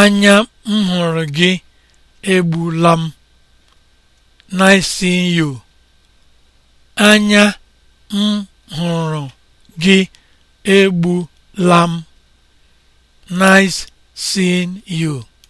Anya m hụrụ gị egbula m. gị egbula m. Nice seeing you.